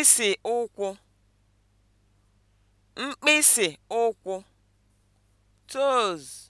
mkpịsị ụkwụ mkpịsị ụkwụ toes